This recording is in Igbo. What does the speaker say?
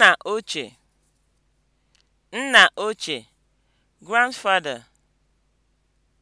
Nna ochie, nna ochie, grandfather